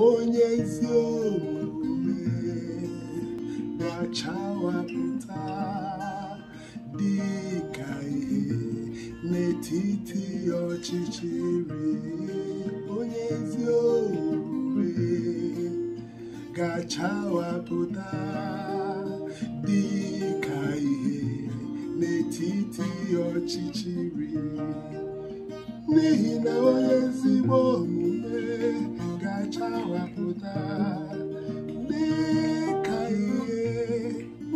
onye ezi omume na-achawapụta dị ka ihe n'etiti ọchịchịrị onye ezi omume ga-achawapụta dị ka ihe n'etiti ọchịchịrị n'ihi na onye ezigbo omume ga-achawapụta dị ka ihe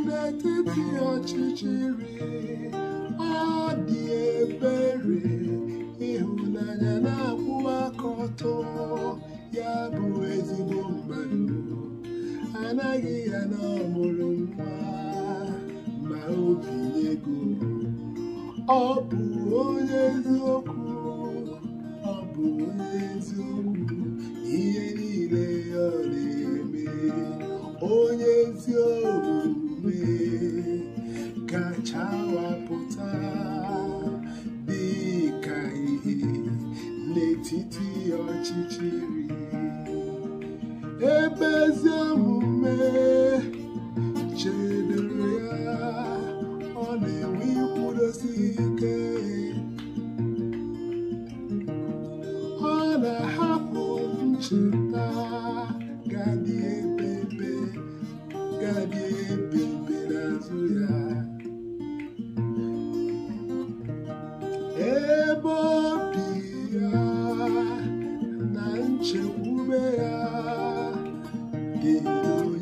n'etiti ọchịchịrị ọ dị ebere ịhụnanya na-akwụ aka ya bụ ezigbo mmadụ anaghị ya na ọmụrụ nwa ma obi ego ọ bụ onye eziokwu onye ezi omume gachawapụta dị ka ihe n'etiti ọchịchịrị ebe ezi omume chedere ya ọ na-enwe ikwudosi ike ọ na-ahapụ ncheta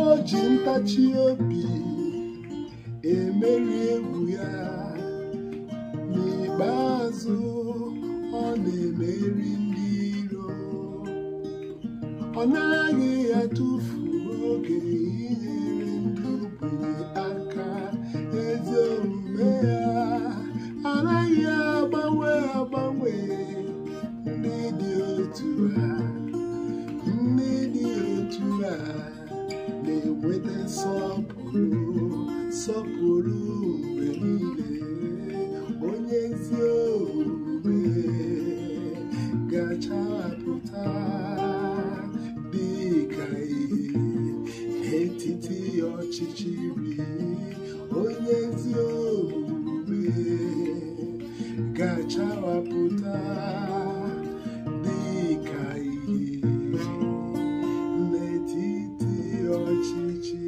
o ji ntachi obi emeri egwu ya n'ikpeazụ ọ na-emeri ndị iro ọ naghị atụfu oge inyere ndị ogbenye aka eze omume ya anaghị agbanwe agbanwe sọpụrụ sọpụrụ mgbe niile onye ezi omume puta, dị ka ihe n'etiti ọchịchịrị onye ezi omume puta, dị ka ihe n'etiti